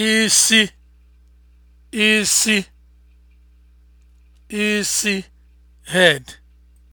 isi isi isi head